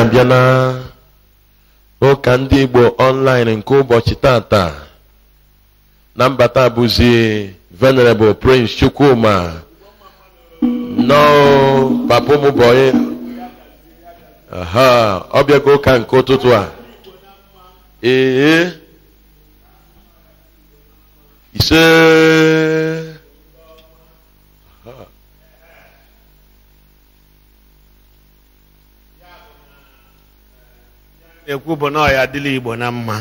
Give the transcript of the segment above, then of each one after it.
abịa na ụka ndị Igbo ọnlaịn nke ụbọchị tata na mbata bụzi venerable Prince Chukwuma papa ụmụbọyị ọ bịago ụka nke ụtụtụ a ee ise ekwu bụ na ọ ya dịla igbo na mma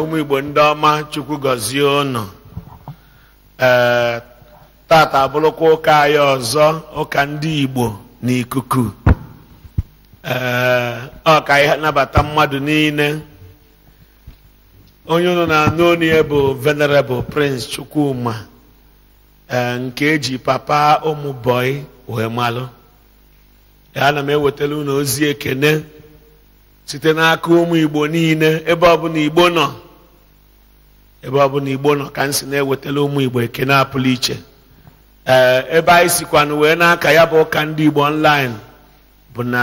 ụmụ igbo ndị ọma chukwu gọzie ụnụ ee tata abụrụkwa ụka anyị ọzọ ụka ndị igbo n'ikuku ee ọ ka anyị nabata mmadụ niile onye ụnụ na-anụ bụ venerable prince chukwuma ee nke eji papa ụmụ bọị wee malụ ana m ewetara ụnụ ozi ekene site n'aka ụmụ igbo niile ebe ọbụla igbo nọ ebe ọbụla igbo nọ ka m si na-ewetala ụmụ igbo na apụlụ iche ee ebe anyị sikwanụ wee n'aka ya bụ ụka ndị igbo online bụ na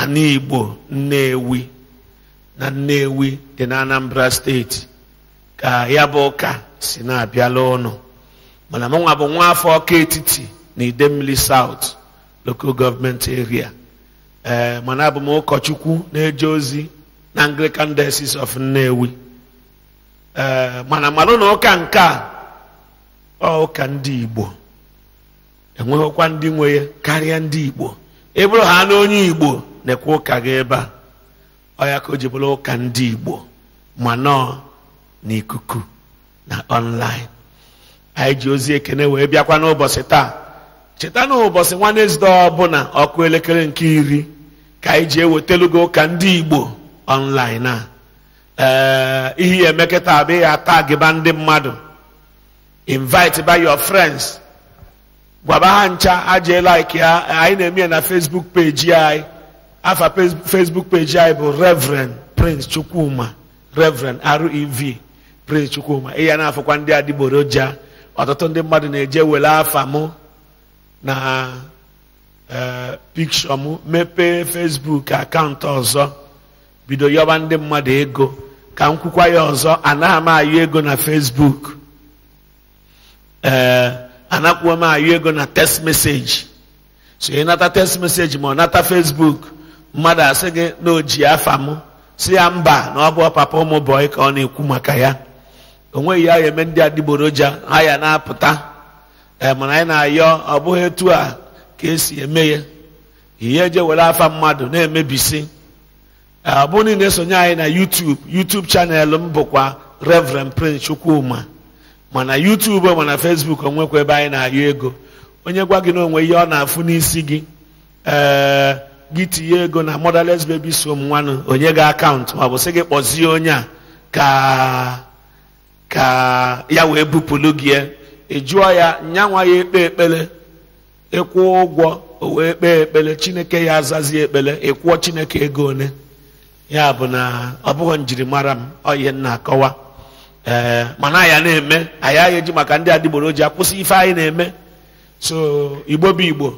ana igbo nnewi na nnewi dị na anambra steeti ka ya bụ ụka si na-abịala ụnụ mana mụnwa bụ nwa afọ ọka etiti na idemmili south local government area ee eh, mana abụm ụkọchukwu na-eje ozi na Anglican Diocese of Nnewi ee eh, mana malụ na ụka nke a ọ ụka ndị Igbo enweghịkwa ndị nwe ya karịa ndị Igbo ịbụrụ ha na onye Igbo na-ekwe ụka gị ebe a ọ ya ka o ji bụrụ ụka ndị Igbo ma na n'ikuku na online anyị ji ozi ekene wee bịakwa n'ụbọchị taa cheta na ụbọchị nwanezde ọbụna ọkụ elekere nke iri ka anyị ji gị ụka ndị igbo ọnlaịn a ee ihe ya emekọta ya gịba ndị mmadụ invite by your friends gwaba ha ncha aje like ya anyị na-eme ya na facebook page anyị afa facebook page anyị bụ reverend prince chukwuma reverend rev prince chukwuma na-afụkwa ndị adịgboroja ọtụtụ ndị mmadụ na-eje wele afa mụ na e, pikshọ m mepee fesbuk akaụntụ ọzọ bido yọba ndị mmadụ ego ka m kwukwa ya ọzọ anaghị m ayọ ego na fesbuk ee anakwuo m ayọ ego na text message so ị nata text message ma ọ nata fesbuk mmadụ asị gị na o ji afa m si ya mba na ọ bụ papa ụmụ bọị ka ọ na-ekwu maka ya o ya eme ndị adịgboroja ha ya na-apụta mana anyị na-ayọ ọ bụghị etu a ka esi eme ya ihe eje were afa mmadụ na-emebisi ọ bụ niile esonye anyị na YouTube YouTube chanel m bụkwa Reverend Prince Chukwuma mana YouTube mana Facebook onwekwa ebe anyị na-ayọ ego onye gwa gị na onwe ihe ọ na-afụ n'isi gị ee gị tinye ego na Motherless Babies Home nwanụ onye gị akaụntụ ma ọ bụ sị gị kpọzie onye a ka ka ya wee bupụlụ gị ịjụọ ya nyanwa ya ekpe ekpele ịkwụọ ụgwọ o wee kpee ekpele chineke ya azazi ekpele ịkwụọ chineke ego one ya bụ na ọ bụghị njirimara m oyihe nna akọwa ee mana ya na-eme anyị agha eji maka ndị adịgboroji akwụsị ife anyị na-eme so igbo bụ igbo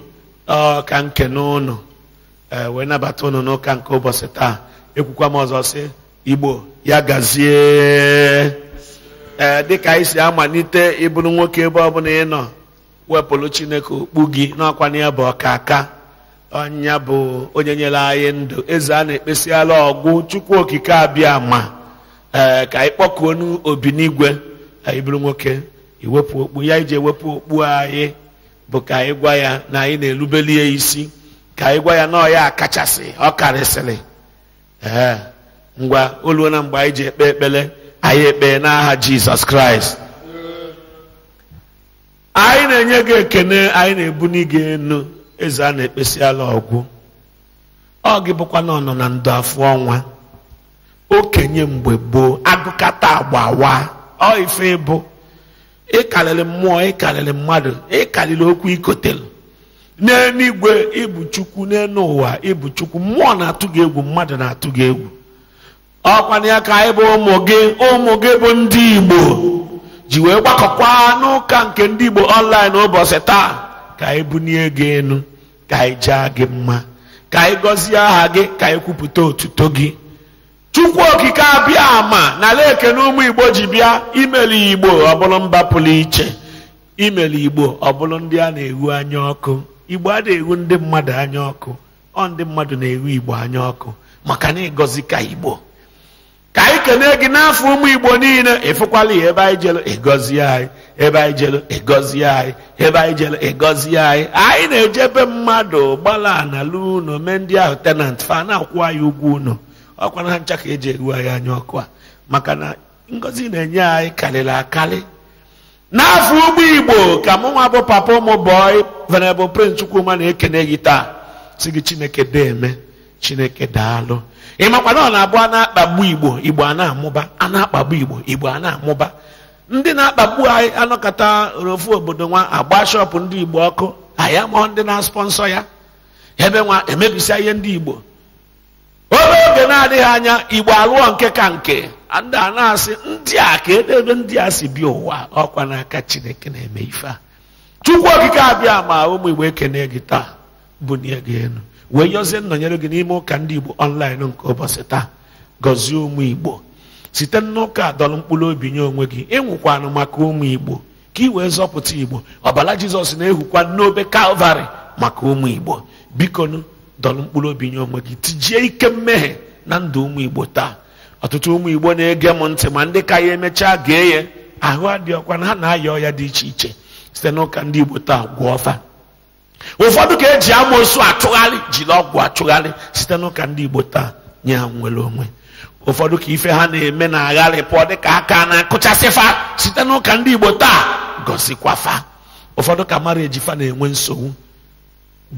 ka nke n'ụlọ ee wee nabata ụnụ n'ụka nke ụbọchị taa ekwukwa m ọzọ sị igbo ya gazie ee eh, dịka anyị si amalite ịbụrụ nwoke ebe ọbụla ị nọ wepụrụ chineke okpu gị n'ọkwanye na ya bụ aka ọnya bụ onye nyere anyị ndụ eze a na-ekpesiala ọgwụ chukwu okike abịa ma ee eh, ka anyị kpọkuo n'obi n'igwe anyị nwoke iwepụ okpu ya iji ewepụ okpu anyị bụ ka anyị gwa ya na anyị na-erubeli ya isi ka anyị gwa ya na ọya kachasị ọ karịsịrị ee eh, ngwa oluo na mgbe anyị ji ekpe ekpere anyị ekpee n'aha jizọs kraịst anyị na-enye gị ekene anyị na ebu gị enu eze a na-ekpesiala ọgwụ ọ gị bụkwa na ọnọ na ndụ afọ ọnwa okenye mgbe gboo agụkata agba wa ọ ife bụ ịkarịrị mmụọ ịkarịrị mmadụ ịkarịrị okwu ikotelu n'eluigwe ịbụ chukwu n'elu ụwa ịbụ chukwu mmụọ na-atụ gị egwu mmadụ na-atụ gị egwu ọkwana ka anyị bụ ụmụ gị ụmụ gị bụ ndị igbo ji wee gbakọkwa n'ụka nke ndị igbo ọnlaịn ụbọchị taa ka anyị bunie gị elu ka anyị jaa gị mma ka anyị gọzie aha gị ka anyị kwupụta otuto gị chukwu okike abịa ama n'ala na ụmụ igbo ji bịa imeli igbo ọbụlụ mba pụrụ iche imeli igbo ọbụlụ ndị a na-ewu anya ọkụ igbo a na-ewu ndị mmadụ anya ọkụ ọ ndị mmadụ na-ewu igbo anya ọkụ maka na ịgọzi ka igbo ka anyị kene gị n'afọ ụmụ igbo niile ịfụkwala ya ebe anyị jelu ịgọzi anyị ebe anyị ịgọzi anyị ebe anyị jelu ịgọzi anyị anyị na-ejebe mmadụ gbala na lu unu mee ndị ahụ tenant fa na-akwụ anyị ugwu unu ọkwa na ncha ka eji eru anyị anya ọkụ a maka na ngọzi na-enye anyị karịrị akarị n'afọ ụgbọ igbo ka mụ nwa bụ papa ụmụ bọị venerable prince chukwuma na-ekene gị taa si gị chineke deeme chineke daalụ ịmakwana ọ na-abụ a na-akpagbu igbo igbo a na-amụba a na-akpagbu igbo igbo a na-amụba ndị na-akpagbu anyị anọkọta ofu obodo nwa agba shọpụ ndị igbo ọkụ anyị mụọ ndị na asponsọ ya ebe nwa emebisia ihe ndị igbo obere oge na-adịghị anya igbo alụọ nke ka nke ndị a na-asị ndị a ka edebe ndị a si bịa ụwa ọkwa n'aka chineke na-eme ife a chukwu okike abịa ma ụmụ igbo ekene gị taa bunie gị elu wee yọzie nnọnyere gị n'ime ụka ndị igbo ọnlaịn nke ụbọchị taa gọzie ụmụ igbo site n'ụka dọrọ mkpụrụ obi nye onwe gị ịnwụkwanụ maka ụmụ igbo ka ị wee zọpụta igbo ọbara jizọs na-ehukwa n'obe kalvarị maka ụmụ igbo biko dọrọ mkpụrụ obi nye onwe gị tijie ike mmehie na ndụ ụmụ igbo taa ọtụtụ ụmụ igbo na-ege m ntị ma ndị ka ya emechaa gee ya ahụ adịghị ọkwa na ha na-aya ya dị iche iche site n'ụka ndị igbo taa gwọọ ọfa ụfọdụ ka eji amoosu atụgharị jiri ọgwụ atụgharị site n'ụka ndị igbo taa nye ha nwere onwe ụfọdụ ka ife ha na-eme na pụọ dịka aka na-akụchasịfa site n'ụka ndị igbo taa gosikwafa ụfọdụ ka mara ejifa na-enwe nsogbu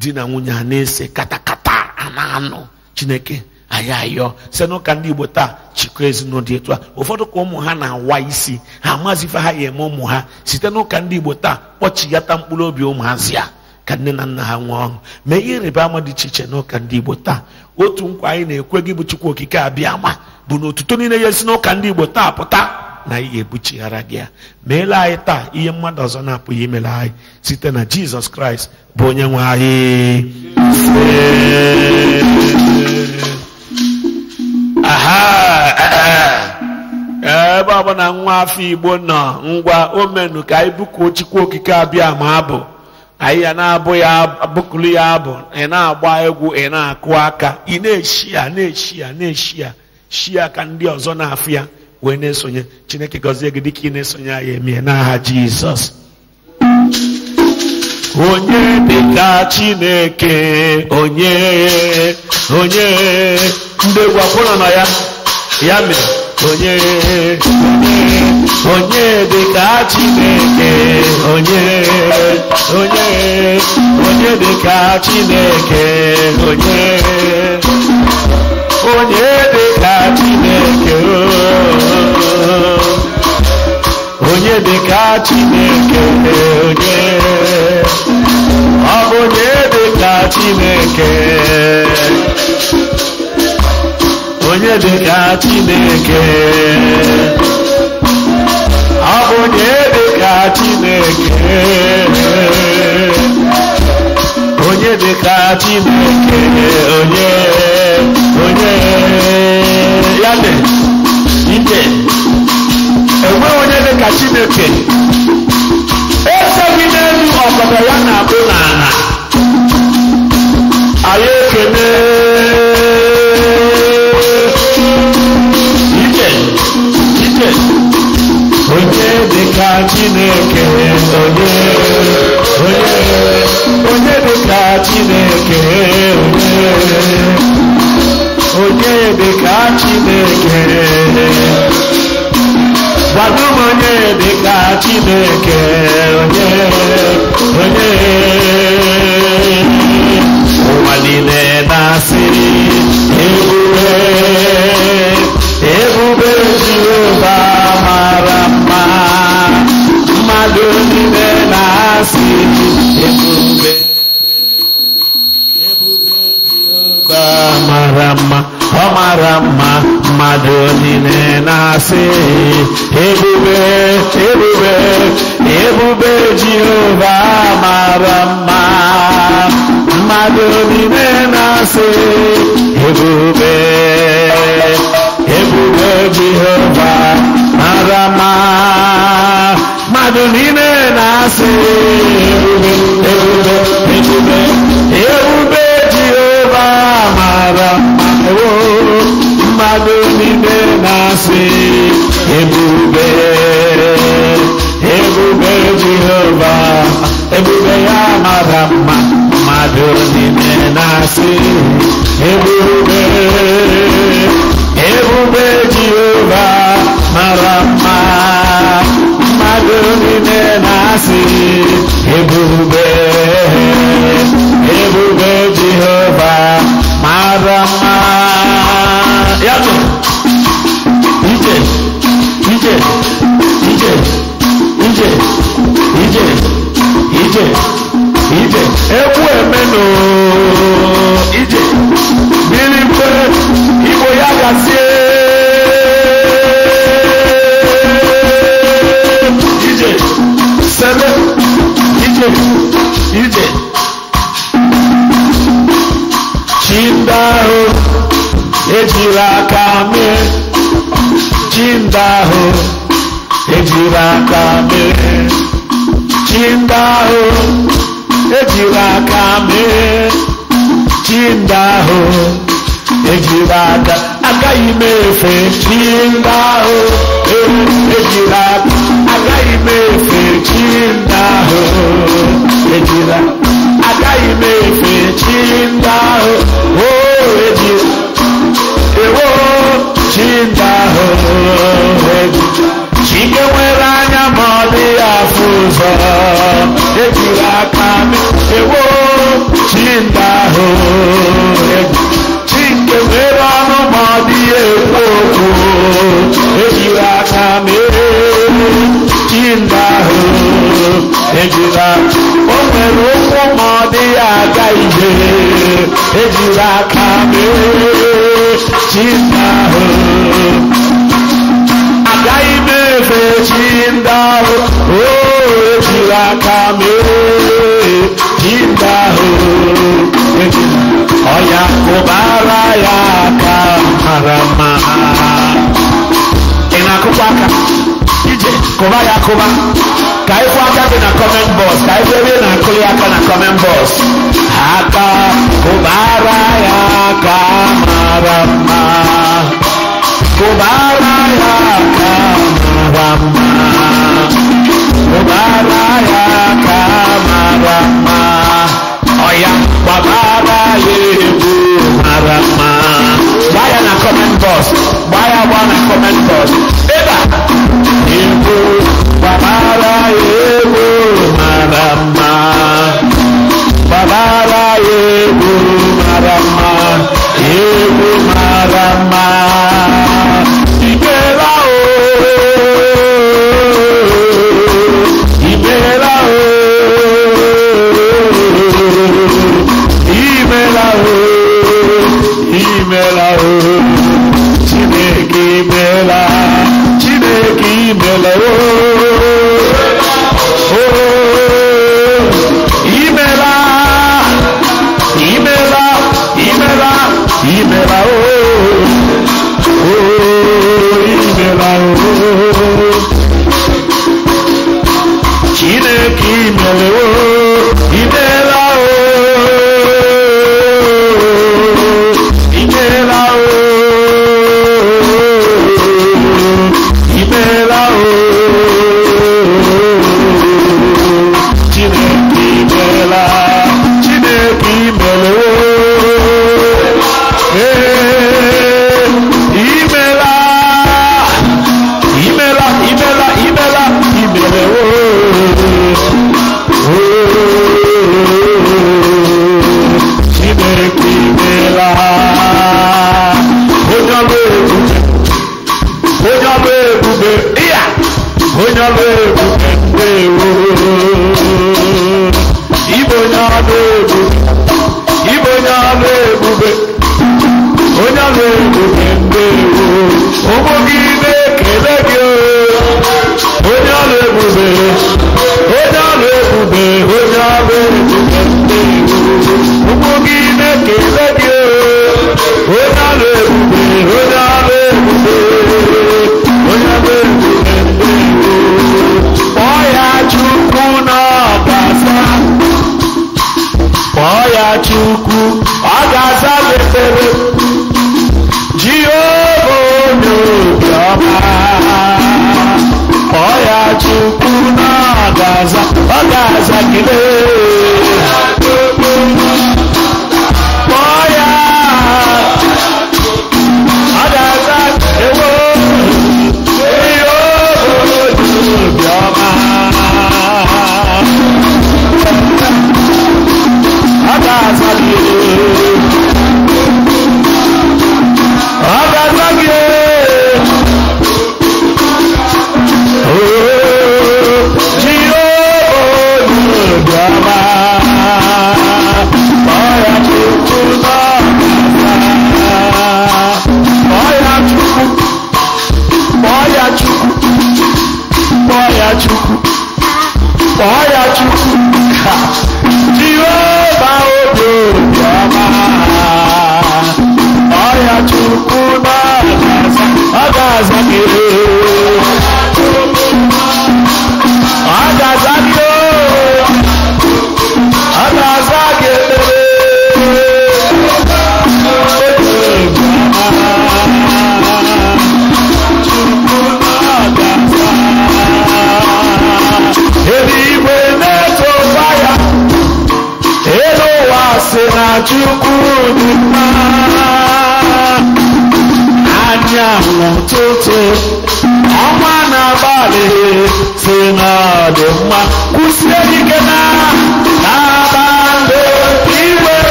di na nwunye a na-ese katakata a na-anụ chineke anyị ayọ site n'ụka ndị igbo taa chịkọ ezinụlọ etu a ụfọdụ ka ụmụ ha na-awa isi ha amazife ha ya eme ụmụ ha site n'ụka ndị igbo taa kpọchigata mkpụrụ obi ụmụazị a ka nne na nna ha nwee ọṅụ mee ihe ịrịba ama dị iche iche n'ụka ndị igbo taa otu nkwa anyị na-ekwe gị bụ chukwu okike abịa ma bụ na otuto niile ya esi n'ụka ndị igbo taa pụta na ihe ebuchighara gị ya meela anyị taa ihe mmadụ ọzọ na-apụghị imela anyị site na jizọs kraịst bụ onye nwe anyị eh, eh. ebe ọ bụ na nwa afọ igbo nọ ngwa omenu ka anyị bụkuo chukwu okike abịa ma abụ anyị na-abụ ya bụkụlu ya abụ ị na-agba egwu ị na-akụ aka ị na-eshi ya na-eshi ya na-eshi ya shi aka ndị ọzọ na-afụ ya wee na-esonye chineke gọzie gị dịka ị na-esonye ya emie n'aha jizọs onye dịka chineke onye onye ndị egwu na ya ya mere onye onye onye dị ka Chineke onye onye onye ka Chineke onye onye dịka Chineke onye dịka Chineke onye ọ bụ onye Chineke onye Chineke onye dịka Chineke onye dịka Chineke onye onye ya dị ike enwe onye dịka Chineke eseghị n'elu ọkọdọ ya na-abụ n'ala anyị ekele Yes. ka Chineke onye onye onye dị ka Chineke onye onye dị ka Chineke gbado m onye dị ka Chineke onye onye ụwa niile na-asị ebube ebube Jehova Rama, Rama Rama, Madhurine né nasce. Ebube, Ebube, de Jeová, Marama, Madhurine né nasce. Ebube, Ebube Jeová, Marama, Ebu be, Ebu be, Ebu be. ebe oh, maara ewo mmadụ niile na-asị ebube ebube jehova ebube ya mara mma mmadụ niile na-asị ebube ebube jehova mara mma mmadụ niile ebube ebube ije ije egwu emenu ije mmiri mpe igbo ya gazie ije sebe ije ije chi ndị ahụ ejiri aka mee chi ndị ahụ ejiri aka mee chinda ho Ejiwa kame. mee chinda ho ejila aka agaghị m efe chinda ho ejila aka agaghị m efe chinda ho ejila agaghị m efe chinda ho o oh, ejila ewo chinda ho ejila ikewere anya ma ọ dị ya afụ ụzọ ejiri aka ewo chinda ahụ chike mere ọnụ ma ọ dị ya ekwu okwu ejiri aka mere chinda ahụ ejiri aka o nwere ụkwụ ma ọ dị aga ihe ejiri aka mere chinda ahụ chi ndahụ ojiri aka mere chi ndahụ ọya kụbara ya aka mara mma ị na-akụkwa aka ije kụba ya akụba ka ịkwụ aka dị na kọment bọs ka ịkwụ ebe ị na-akụ ya aka na kọment bọs aka kụbara ya aka mara mma kụbara ya aka mara mma ya na comment box gbaa na comment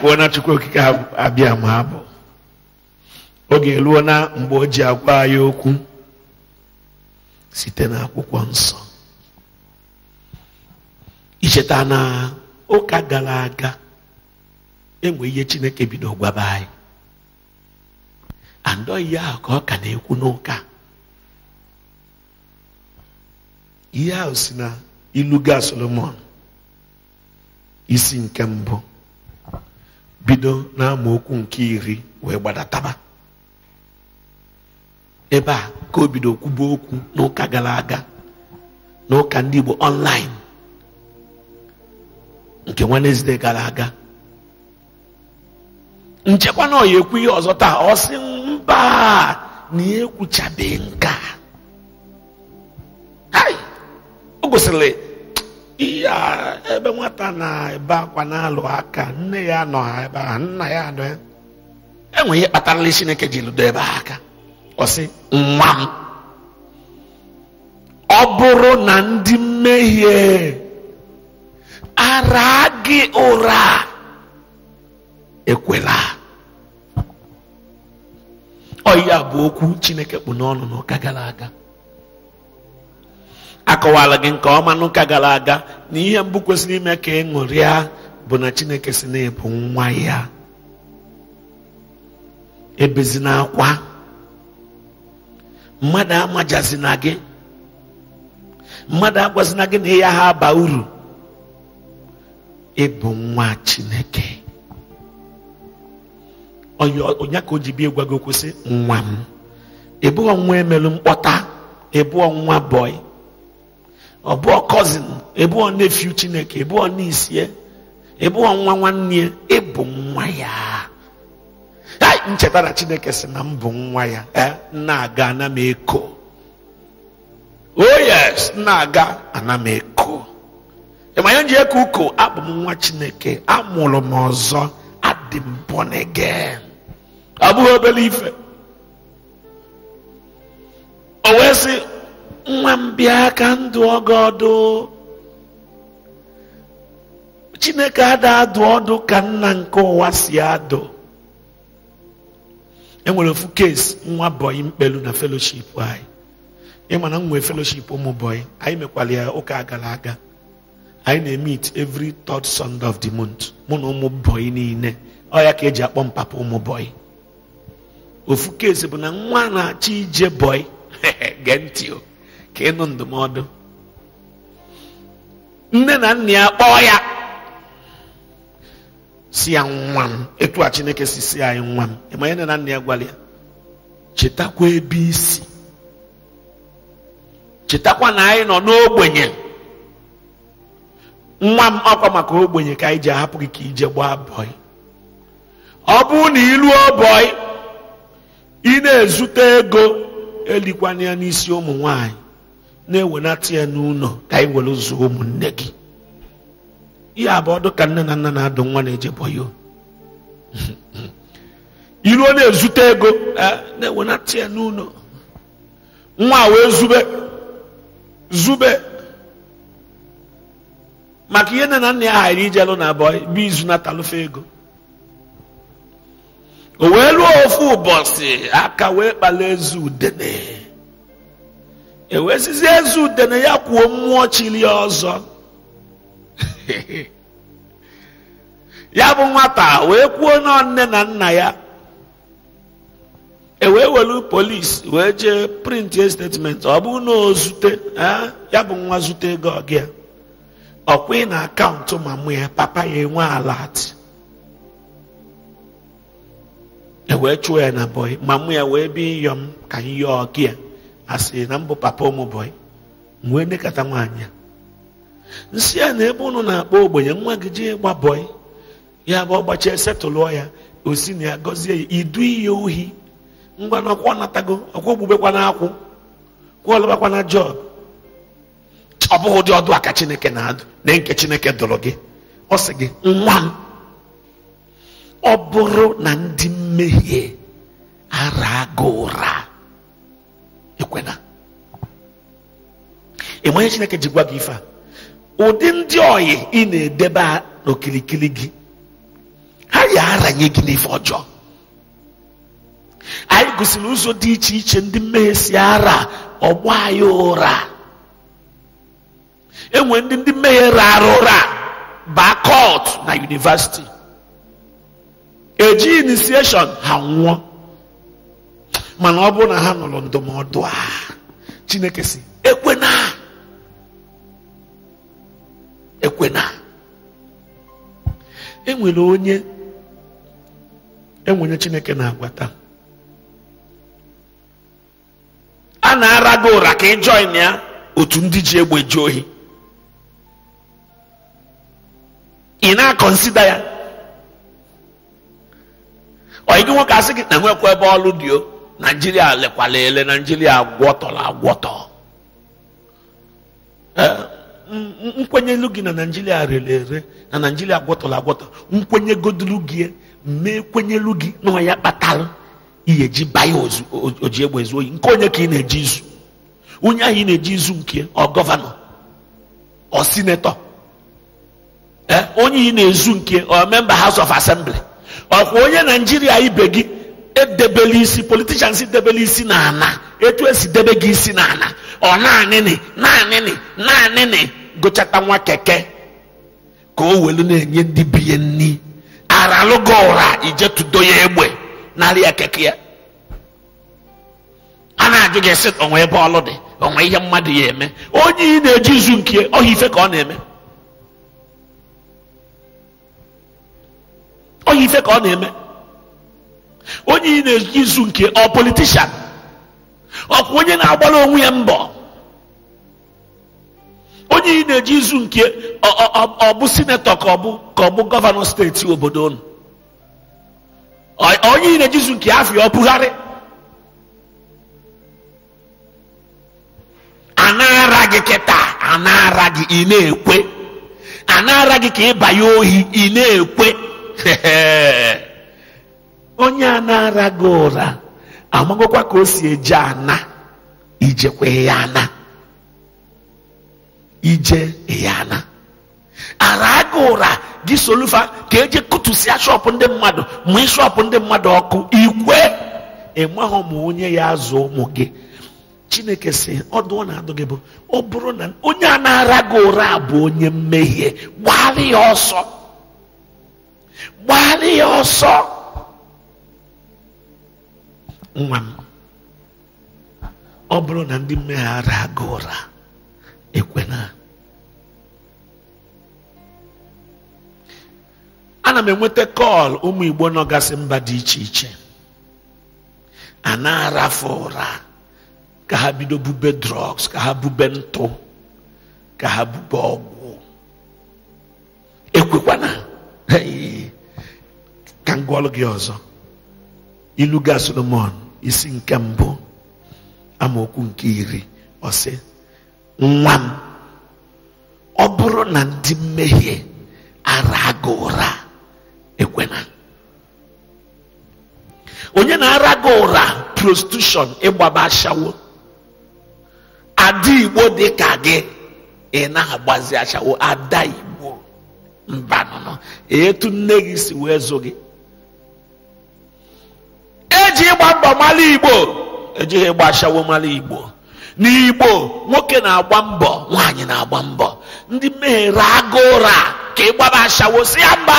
pụọ na chukwu okike abịa ma abụ oge eluo na mgbe o ji agwa anyị okwu site n'akwụkwọ nsọ icheta na ụka gara aga enwe ihe chineke bido gwaba anyị andọ ihe ahụ ka ọ ka na-ekwu n'ụka ihe ahụ si na iluga solomon isi nke mbụ bido n'amaokwu nke iri wee gbadataba ebe a ka o bido kwuba okwu n'ụka gara aga n'ụka ndị Igbo online nke wenezde gara aga nchekwa na ọya ekwu ihe ọzọ taa ọ sị mba na ya e ekwuchabeghị nke a o gosiri ya ebe nwata na-ebe akwa na-alụ aka nne ya nọ ha ebe nna ya nọ ya enweghị ihe kpatarala chineke ji lụdo ebe aka ọ sị nwa m ọ bụrụ na ndị mmehie ara gị ụra ekwela ọ ya bụ okwu chineke kpụ n'ọnụ n'ụka gara aga akọwala gị nke ọma n'ụka gara aga na ihe mbụ kwesịrị ime ka ị ṅụrịa bụ na chineke si na-ebu nwa ya ebezinakwa mmadụ amajazina gị mmadụ agwazina gị na ya ha aba uru ịbụ nwa chineke onye ka o ji bie kwụsị nwa m ịbụghị nwa emelu mkpọta nwa bọị ọbụọ cousin ebuo nephew chineke na niece ya ebuo nwa nwanne ya e ịbụ nwa ya ncheta na chineke si na m bụ nwa ya e, na-aga ana m eko oh yes na-aga ana m eko ịma ya eko uko abụ m nwa chineke amụrụ m ọzọ adị m born again ọ bụghị obere ife o wee sị nwa m bịa ka ndụ ọgọ ọdụ chineke ada adụ ọdụ ka nna nke ụwa si adụ enwere ofu nwa bọyị mkpelu na feloship anyị ịma na m nwee feloship ụmụ bọyị anyị mekwara ya ụka agara aga anyị na-emit evri third sunday of the month mụ na ụmụ bọyị niile ọ ya ka eji akpọ m ụmụ bọyị ofu bụ na nwa na-achọ ije bọyị gee ntị o ka ịnụ ndụmọdụ nne na nna ya kpọọ ya si ya nwa m etu a chineke si si anyị nwa m ịma ya nne na nna ya gwara chetakwa ebe isi chetakwa na anyị nọ n'ogbenye nwa m ọkwa maka ogbenye ka anyị ji ahapụ gị ka ije gbaa bọị ọ bụ na ịlụ ọbọị ị na-ezute ego elikwa ya n'isi ụmụ nwanyị na-ewenata ya n'ụlọ ka anyị were zuo ụmụnne gị ihe abụọ dị ka nne na nna na-adụ nwa na-eje bọyo iruo na-ezute ego e, na-ewenata ya n'ụlọ nwa wee zube zube maka ihe nne na nna ya ghara ijelụ na abụọ bụ izu na-atalụfe ego o wee ruo ofu ụbọchị aka wee kpala ezi udene ezu eze na ya kwuo mmụọ chili ọzọ ya bụ nwata wee kwuo na nne na nna ya ewee welu polis wee jee print statement ọ bụ na ozute ya bụ nwa zute ego ọgịa ọkwụ na akaụntụ mama ya papa ya enwe alati ewee chụọ ya na bọị mama ya wee bi nyom ka nyọ ya. asịrị na mbụ papa ụmụbọyị wee nekata nwaanyị nsị a na ebe ụnụ na-akpọ ogbenye nwa gị jee gba bọyị ya bụ ọgbachie setụlụọ ya osi na ya gọzie ya idu iyi ohi ngwa na ọkwa natago ọkwa ogbugbekwa na akwụ kwụọ lụbakwa na jọb ọ bụghị ụdị ọdụ aka chineke na-adụ na nke chineke dụrụ gị ọ sị gị nwa m ọ bụrụ na ndị mmehie ara gị ụra kwena, ị chineke ji gwa gị ife a ụdị ndị oyi ị na-edebe n'okirikiri gị ha ya aranye gị n'ife ọjọọ anyị gosiri ụzọ dị iche iche ndị mmehie si ara ọgba anyị ụra enwere ndị ndị mmehie rara ụra baa na yunivasiti eji inisieshọn ha nwụọ mana ọ bụrụ na ha nụrụ ndụmọdụ a chineke si ekwena ekwena enwere onye enwere chineke na-agwata a na-ara gị ụra ka ị join ya otu ndị ji egbe ji ohi ị na-akọnsida ya ọ gị nwoke asị gị na nwekwa ebe ọlụ dị o naijiria lekwala ele naijiria agwọtọla agwọtọ nkwenye gị na naijiria rere ere na naijiria agwọtọla agwọtọ nkwenye godulu gị mee kwenyelu gị na ọya kpatara ihe ji baya oji egbe ezu oyi nke onye ka ị na-eji izu onye ahụ ị na-eji izu nke ọ gọvanọ ọ sinetọ onye ị na-ezu nke ọ memba house of assembly ọkwa onye naijiria ibe gị edebela isi politishans debela isi n'ala etu esi debe gị isi n'ala ọ naanịnị naanịnị naanịnị gụchata nwa keke ka o welu na-enye ndị biye nni aralụgo ụra ije tudo ya egbe narị ya keke ya a na-ajụ gị sị onwe ebe ọlụ dị onwe ihe mmadụ ya eme onye ị na-eji izu nke ọhịa ife ka ọ na-eme ọhịa ife ka ọ na-eme onye ị na-eji izu nke ọ politishan ọkwa onye na-agbara onwe ya mbọ onye ị na-eji izu nke ọ bụ sinetọ ka ọ bụ ka ọ bụ gọvanọ steeti obodo unu onye ị na-eji izu nke afọ ya ọ bụgharị anara gị kịta anara gị ị na-ekwe anara gị ka banye ohi ị na-ekwe onye a na-ara ụra amagokwa ka o si eje ana ijekwa ya ana ije ya ana ara gị ụra gị solufa ka eje kụtụsịa shọpụ ndị mmadụ ma shọpụ ndị mmadụ ọkụ ikwe enweghị ma onye ya azụ ụmụ gị chineke si ọdụ na adụ gị bụ ọ bụrụ na onye a na-ara gị ụra bụ onye mmehie gbara ya ọsọ ya ọsọ nwa m ọ bụrụ na ndị mmeghara aga ụra na ana m enweta kọl ụmụ igbo nọgasị mba dị iche iche a na afọ ụra ka ha bido bube drọgs ka ha bube ntụ ka ha bube ọgwụ ekwekwana ka m gị ọzọ ilu ga solomon isi nke mbụ amaokwu nke iri ọ nwa m ọ bụrụ na ndị mmehie ara ụra ekwena onye na-ara gị ụra prostitution ịgbaba ashawo ada igbo dị ka gị ị na-agbazi ashawo ada igbo mbanụnụ etu nne gị si wee zụ gị eji ịgba mbọ mara igbo ejighị ịgba ashawo mara igbo n'igbo nwoke na-agba mbọ nwaanyị na-agba mbọ ndị mmehiere agụ ụra ka ịgbaba ashawo si ya mba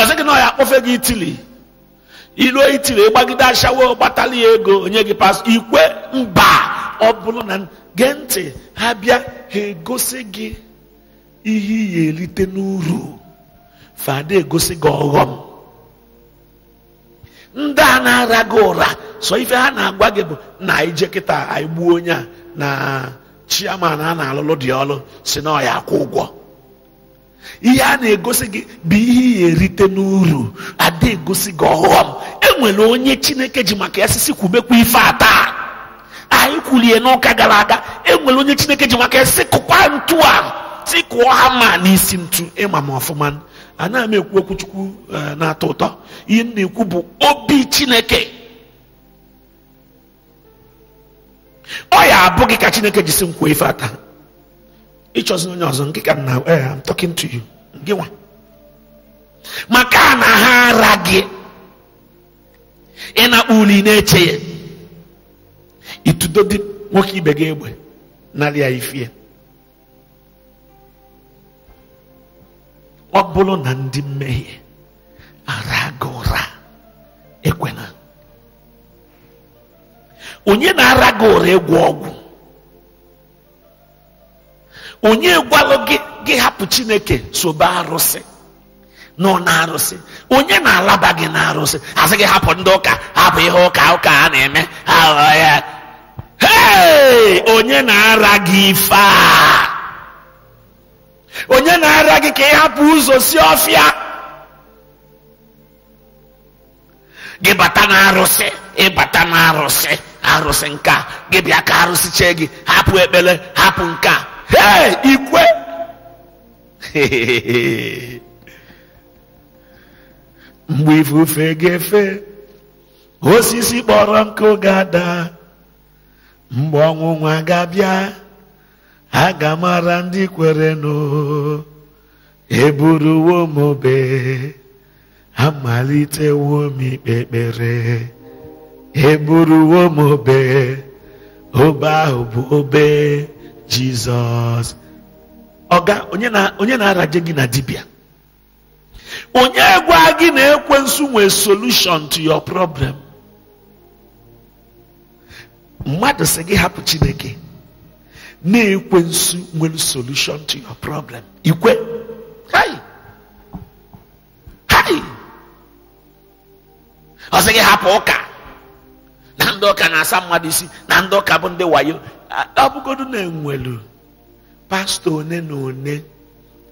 ọsị gị na ya akpọfe gị itili iluo itili ịgbagide ashawo gbatala ya ego onye gị pas ikwe mba ọ bụrụ na gee ntị ha bịa ha egosi gị ihe ị ga erite n'uru fada egosi gị ọghọm ndị a na-ara gị ụra sọ ife ha na-agwa gị bụ na ije kịta anyị gbuo onye a na chiaman a na-alụlụ dị ọlụ si na ọya akwụ ụgwọ ihe a na-egosi gị bụ ihe ya erite n'uru ada egosi gị ọghọm enwere onye chineke ji maka ya sisi kwubekwa ife a taa anyị kwulie n'ụka gara aga enwere onye chineke ji maka ya sisi kụkwa ntu a si kụọ ha ma n'isi ntu ịma m ọfụma anaghị m ekwu okwu eh, na-atọ ụtọ ihe m na-ekwu bụ obi chineke ọ ya abụ ka chineke jisi nkwa ife ata ịchọzi onye ọzọ nke ka m na eh, I'm talking to you gị nwa maka na ha ara gị ịnakpọ uli na-eche ya itudo dị nwoke ibe gị egbe narị ya ifie ọ bụrụ na ndị mmehie ara ụra ekwena onye na-ara ụra ịgwọ ọgwụ onye gwalụ gị gị hapụ chineke sobe arụsị nọ na-arụsị onye na-alaba gị na-arụsị asị gị hapụ ndị ụka hapụ ihe ụka ụka a na-eme aghọ ya onye na-ara gị ife a onye na-ara gị ka ịhapụ hapụ ụzọ si ọfịa gị bata na arụsi ịbata na arụsi arụsi nka gị bịa ka arụsị chee gị hapụ ekpele hapụ nka hee ikwe mgbe ifufe ga-efe osisi kpọrọ nkụ oge ada mgbe ọṅụṅụ ga-abịa ha ga-amara ndị kwerenụ eburuwo m obe amalitewo m ikpe ekpere eburuwo m obe obe ahụ bụ obe jizọs ọga onye na-araje gị na dibia. onye gwa gị na ekwensu nwee solution to your problem mmadụ sị gị hapụ chineke na-ekwensu nwere solution to your problem ikwe hai hai ọ sị gị hapụ ụka na ndị ụka na-asa mmadụ isi na ndị ụka bụ ndị wayo ọ na enwelu pastọ one na one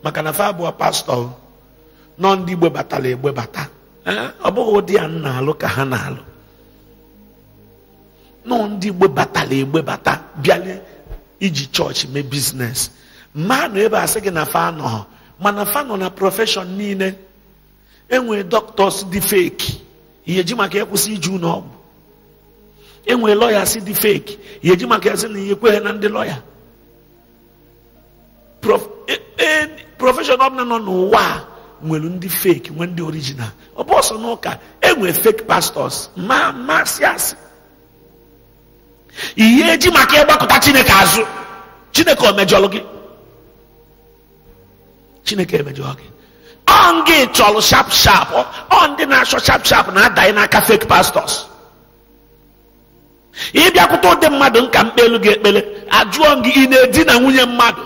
maka na fa abụọ pastọ nọ ndị igbe egbebata ọ bụghị ụdị ya na-alụ ka ha na-alụ nọ ndị batara bata bịalie iji chọọchị mee biznes mma nọ ebe asị gị na fa anọ mana fa nọ na profeshọn niile enwee dọktọs dị feki ihe ji maka ịkwụsị iji ụlọ ọgwụ enwee lọyas dị feki ihe ji maka ya sị na ihe kweghị na ndị lọya e, e, profeshọn ọbụla nọ n'ụwa a nwere ndị feki nwee ndị orijinal ọ bụ ọsọ n'ụka enwee feki pastọs ma masị asị ihe eji maka ịgbakọta chineke azụ chineke omejọlụ gị chineke emejọ gị gị chọlụ sharp sharp on ndị na-achọ sharp sharp na-adanye n'aka fake pastors ịbịakwute ụdị mmadụ nka mkpelu gị ekpele ajụọ gị ị na na nwunye mmadụ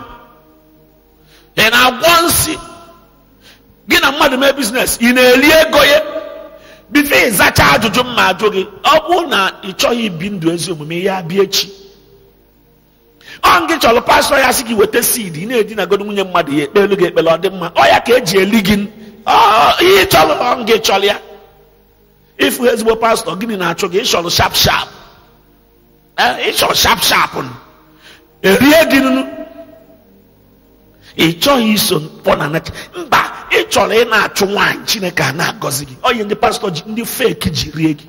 ị na-agwọ nsị gị na mmadụ mee biznes ị na-eri ego ya bido ịzacha ajụjụ mma ajụ gị ọ bụrụ na ị chọghị ibi ndụ ezi omume ya bịa echi ọ gị chọrọ pastọ ya sị gị weta seed ị na-edinagodo nwunye mmadụ ya ekpelu gị ekpere ọ dị mma ọ ya ka eji eli gị ihe chọrọ ọ gị chọrọ ya ịfụ ezigbo pastọ gịnị na-achụ gị ịchọrọ sharp sharp ịchọrọ sharp sharp erie gị ị chọghị iso mkpọ na mba ị chọrọ ị na-achụ nwaanyị chineke a na-agọzi gị ọ onye ndị pastọ ji ndị feki ji rie gị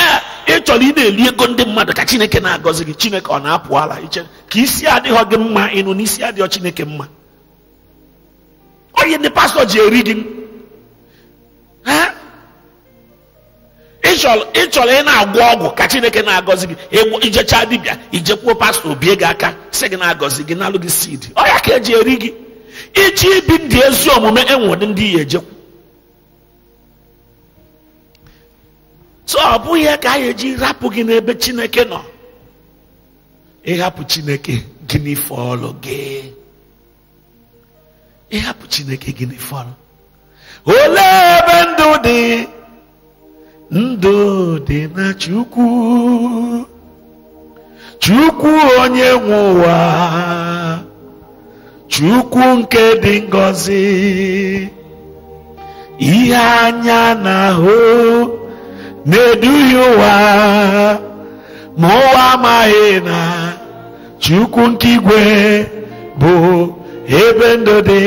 ee ị chọrọ ị na-eri ego ndị mmadụ ka chineke na-agọzi gị chineke ọ na-apụ ala iche ka isi adịghọ gị mma ịnụ n'isi adịghọ chineke mma Ọ onye ndị pastọ ji eri gị ị chọrọ ị na-agwọ ọgwụ ka chineke na-agọzi gị ijecha dibịa ijekwuo pastọ bie gị aka si gị na-agọzi gị nalụ gị sid ọ ya ka eji eri gị iji ibi ndị ezi omume enwere ndị ya ejekwu so ọ bụghị ya ka anyị eji rapụ gị n'ebe chineke nọ ịhapụ chineke gịnị fọlụ gị ịhapụ chineke gịnị fọlụ olee ebe ndụ dị ndụ dị na chukwu chukwu onye nwụwa. ụwa chukwu nke dị ngọzi ihe anya na-ahụ na-eduhie ụwa ma ụwa amaghị na chukwu nke igwe bụ ebe ndụ dị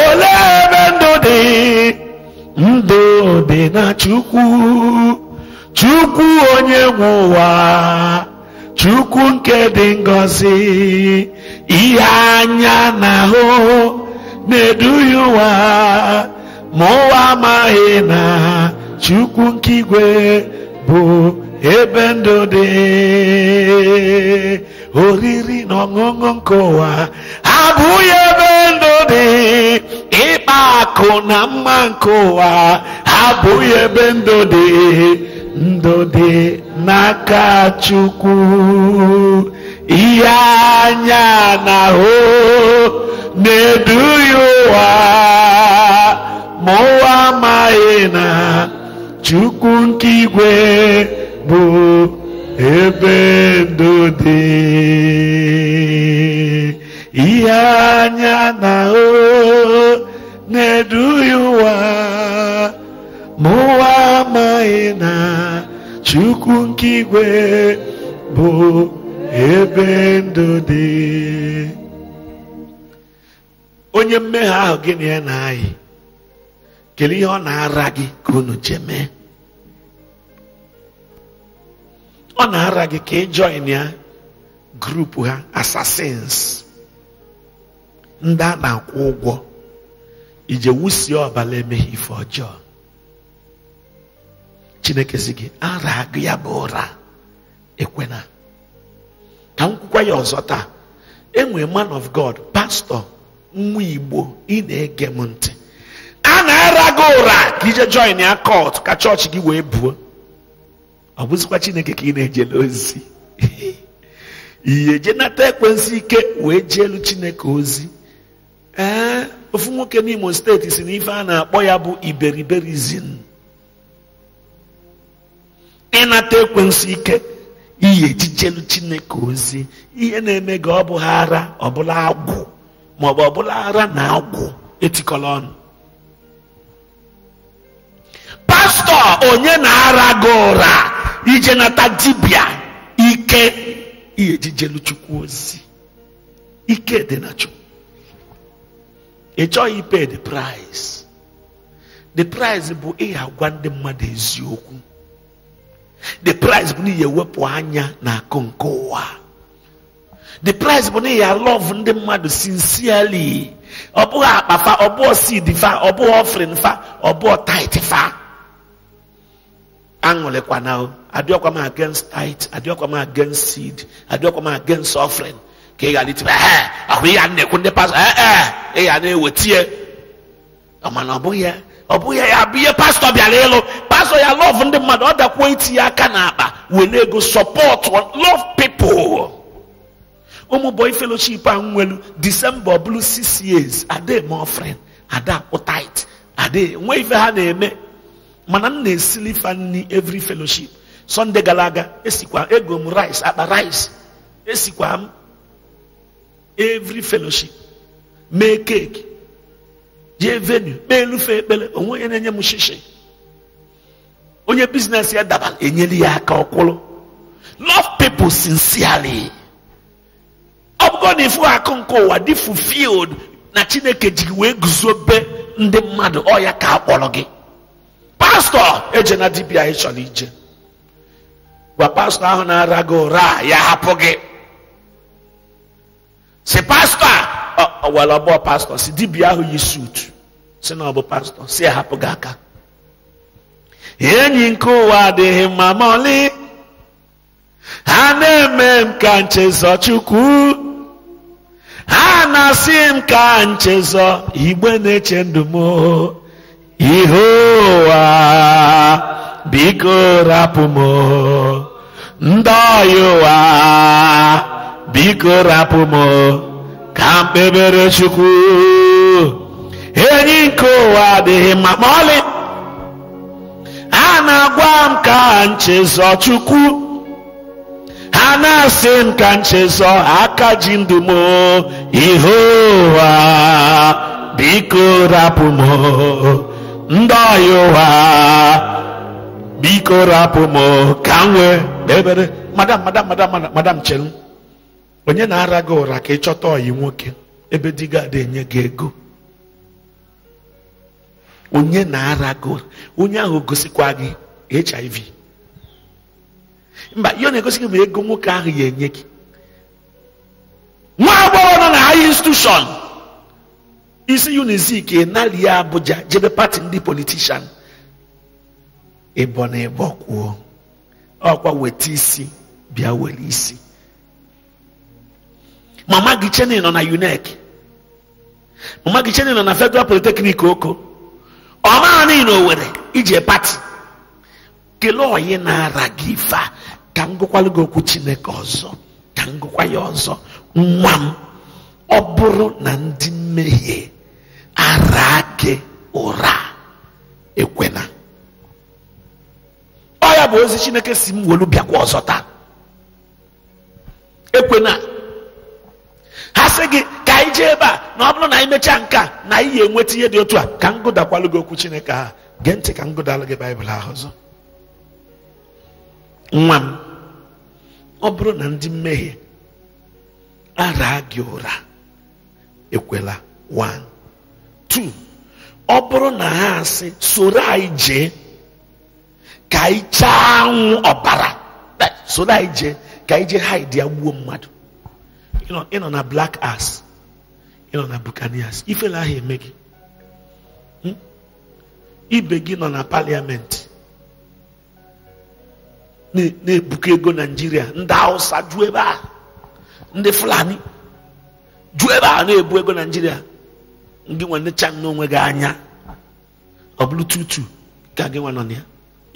olee ebe ndụ dị ndụ dị na chukwu chukwu onye nwe ụwa chukwu nke dị ngọzi ihe anya na ahụ na-eduhie ụwa ma ụwa amaghị na chukwu nke igwe bụ ebe ndụ dị oriri na ọṅụṅụ nke ụwa abụghị ebe ndụ dị ịkpa akụ na mma nke ụwa abụghị ebe ndụ dị ndụ dị n'aka chukwu ihe anya na hụ na-eduhie ụwa ma ụwa amaghị na chukwu nke igwe bụ ebe ndụ dị ihe anya na hụ na-eduhie ụwa ma ụwa amaghị na chukwu nke igwe bụ ebe ndụ dị onye mmehie ahụ gịnị ya na-ayị kedu ihe ọ na-ara gị ka unu mee? ọ na-ara gị ka ị join ya grupu ha assassins ndị a na-akwụ ụgwọ ije wusie ọbala emeghị ife ọjọọ chineke si gị ara ya bụ ụra ekwena ka m kwukwa ya ọzọ taa enwe man of god pastọ nwa igbo ị na-ege m ntị a na-ara gị ụra ka ije join ya kot ka chọọchị gị wee buo ọ bụzikwa chineke ka ị na-ejele ozi ihe nata ekwensu ike wee elu chineke ozi ee ofu nwoke n'imo steeti si na ife a na-akpọ ya bụ iberiberizin ịnata ekwensu ike iyi ejijelu chineke ozi ihe na-eme gị ọ bụ ara ọbụla agwụ maọbụ ọbụla ara na agwụ etikọla ọnụ pastọ onye na-ara gị ụra ije nata dibịa ike ihe ejijelu chukwu ozi ike dị na ị chọghị ipe the price the price bụ ndị mmadụ eziokwu the price bụ na ihe wepụ anya na akụ nke ụwa the price bụ na ihe love ndị mmadụ sincerely ọ bụghị akpa fa ọ bụghị seed fa ọ bụghị offering fa ọ bụghị tithe fa aṅụrịkwana o adịọkwa m against tithe adịọkwa m against seed adịọkwa m against offering ka ị ghara itibe ahụ ihe a na-ekwu ndị pastor ee ị ga na-ewetie mana ọ bụghị ya ọ bụghị ya bụ ihe pastọ bịara ịlụ pastọ ya lọv ndị mmadụ ọ dakwuo itinye aka n'akpa were ego sọpọtụ lọv pipụl ụmụ bọị feloship ahụ nwelu disemba ọbụlụ 6 years ademe ofren ada kpụtait ade nwe ife ha na-eme mana m na-esili fa nri feloship sọnde gara aga esikwa ego m rice akpa rice esikwa m every feloship mee keeki jee venu kpee elufe ekpere onwe onye na-enye m shishi onye biznes ya dabara enyere ya aka ọkwụrụ love people sincerely ọ bụgo na ifu akụ nke ụwa dị fulfilled na chineke ji wee guzobe ndị mmadụ ọ ya ka akpọrọ gị pastọ eje na dibia chọrọ ije gwa pastọ ahụ na-ara gị ụra ya hapụ gị si pastọ a ọwụwa ọbọ pastọ si dibia ahụ yi suut si na ọ bụ pastọ si ahapụ gị aka enyi nke ụwa adịghị mma mọlị ha na-eme m ka nchezọ chukwu ha na-asị m ka nchezọ igbe na-eche ndụ ihe ụwa biko rapụ m ndị ọya ụwa biko rapụ m ka mkpebere chukwu enyi nke ụwa adịghị mma ma ọlị a na-agwa m ka nchezọ chukwu ha na-asị m ka nchezọ aka ji ndụ m ihe ụwa biko rapụ m ndị ọya ụwa biko rapụ m ka m wee madam madam madam madam chere m onye na-ara gị ụra ka ị chọta ọyị nwoke ebe di gị ada enye gị ego onye na-ara gị ụra onye ahụ gosikwa gị hiv mba ihe ọ na-egosi gị ma ego nwoke ahụ ya enye gị nwa agbọghọ nọ na high institution isi unizik ya Abuja jebe pati ndị politishan ịbọ na ịbọ kwuo ọkwa weta isi bịa were isi mama gị chenin nọ na UNEC mama gị chenin nọ na Federal Polytechnic oko ọ na o nwere iji e pati kelee onye na-ara gị ife ka m gụkwalụ gị okwu Chineke ọzọ ka m gụkwa ọzọ nwa m ọ bụrụ na ndị mmehie ara gị ụra ekwena ọ ya bụ ozi Chineke si m welu bịakwa ọzọ taa ekwena ha sị gị ka anyị jee ebe a na ọ bụrụ na ị mechaa nke a na anyị ya enweta ihe dị otu a ka m gụdakwalụ gị okwu chineke ha gee ntị ka m gụdalụ gị baịbụl ahụ ọzọ nwa m ọ bụrụ na ndị mmehie ara gị ụra ekwela one two ọ bụrụ na ha asị soro anyị jee ka anyị chaa anwụ ọbara soro anyị jee ka anyị jee haidi ya gbuo mmadụ nọ na black ass nọ na buccaneers ifela ahụ eme gị hmm? ibe gị nọ na paliamenti na-ebuka ego naijiria ndị hausa ju ebe a ndị fulani ju ebe a na-ebu ego nigeria ndị nwanne chan n'onwe gị anya ọbụrụ bụrụ tutu ka gị nwa nọ na ya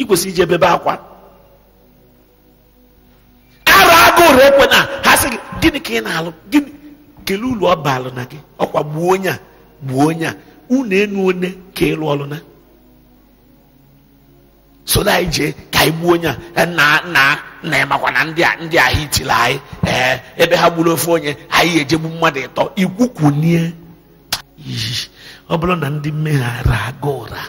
ị kwesịrị ije bebe akwa aka ore ekwe na ha sị gị gịnị ka ị na-alụ gịnị kelee ulu ọ baalụ na gị ọkwa gbuo onye a gbuo onye a unu enu one ka ịlụ ọlụ na so na anyị jee ka anyị gbuo onye a nna e, nna na ịmakwa na ndị a ndị ahụ itila anyị ee ebe ha gburu ofe onye anyị ejegbu mmadụ ịtọ ikwukwunie iyi ọ bụrụ na ndị mmeghara aga ụra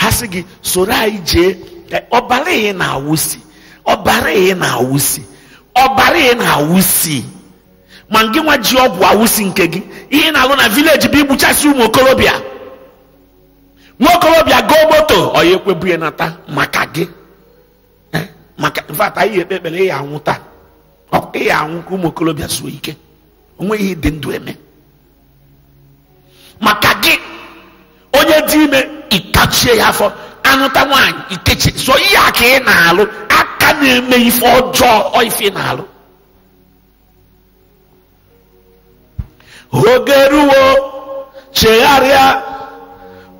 ha sị gị soro anyị jee e, ọbara ị na-awụsi ọbara ị na-awụsi ọbara ị na-awụsi ma gị nwa ji ọgwụ awụsi nke gị ihe na-alụ na vileji bụ igbuchasị ụmụ okorobịa nwa okorobịa goo moto ọya ekwebu ya nata maka gị eh, maka mfata ihe ekpe ekpere ịya anwụ taa ịya anwụ ka ụmụ okorobịa zuo ike onweghị ịdị ndụ eme maka gị onye dị ime ikachie ya afọ anụta nwaanyị ikechi so ihe a ka ị na-alụ aka na-eme ife ọjọọ ife na-alụ oge ruo chegharịa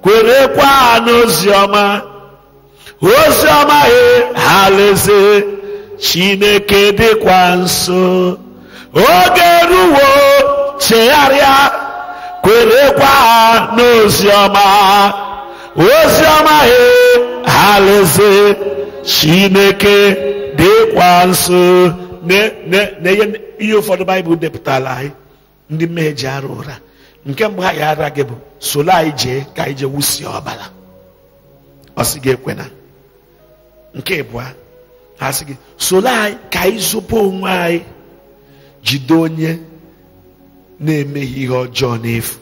kwerekwa e, ha n'oziọma oziọma he ha chineke dịkwa nso oge ruo chegharịa kwerekwa e, ha n'oziọma oziọma he ha chineke dịkwa nso na ihe ụfọdụ baịbụl depụtara anyị ndị mmehie ji arụ ụra nke mgbe ha ga-ara gị bụ solo anyị jee ka anyị jee wusie ọbara ọ sị gị ekwena nke ịbụa ha sị anyị ka anyị zụpụ onwe anyị jide onye na-emeghị ihe ọjọọ n'efu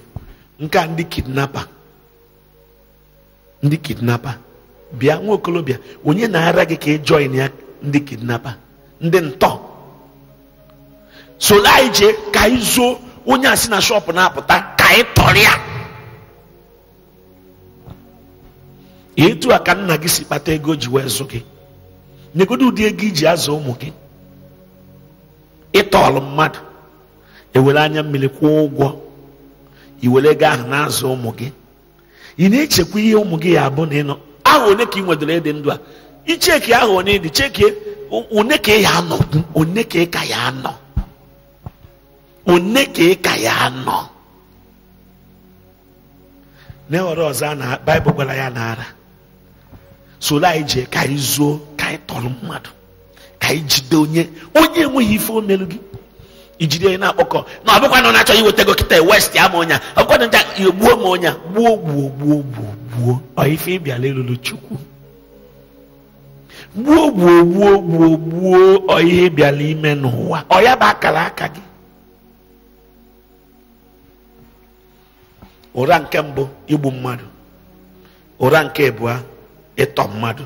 nke a ndị kidnapa ndị kidnapa bịa nwa okolobịa onye na-ara gị ka ị join ya ndị kidnapa ndị ntọ so anyị jee ka anyị zuo onye a si na shọpụ na-apụta ka anyị tọrọ ya etu a ka nna gị si kpata ego ji wee zụ gị nyegodo ụdị ego iji azụ ụmụ gị ịtọọlụ mmadụ ewere anya mmiri kwụọ ụgwọ iwere ego ahụ na-azụ ụmụ gị ị na-echekwa ihe ụmụ gị ya abụ na ịnọ aha one ka ị nwedoro ịdị ndụ a icheki aha onye dị chekie one ka ya anọ one ka ka ya anọ one ka ka ya anọ na ọzọ a na baịbụl gwara ya na ara soro anyị jee ka anyị zuo ka anyị tọrọ mmadụ ka anyị jide onye onye enweghị ife o gị ijiri ya na-akpọkọ na ọ bụkwa na ọ na-achọ iweta ego kịta west ya ma ọnya ọ bụkwa na gbuo ma ọnya gbuo gbuo gbuo gbuo gbuo ịbịala elulu chukwu gbuo gbuo gbuo gbuo gbuo ihe ịbịala ime n'ụwa ọ ya bụ akara aka gị ụra nke mbụ igbu mmadụ ụra nke ịbụa ịtọ mmadụ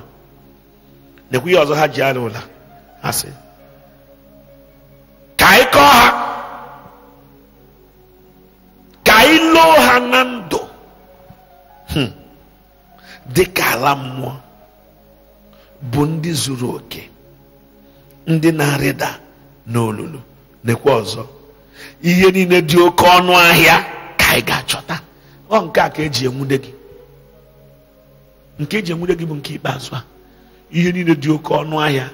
nekwu ihe ọzọ ha ji arụ ụla asị ka anyị kọọ ha ka anyị loo ha na ndụ dị ka ala mmụọ bụ ndị zuru oke ndị na-arịda n'olulu nekwa ọzọ ihe niile dị oke ọnụ ahịa ka anyị ga-achọta ọ nke a ka eji enwude gị nke eji enwude gị bụ nke ikpeazụ a ihe niile dị oke ọnụ ahịa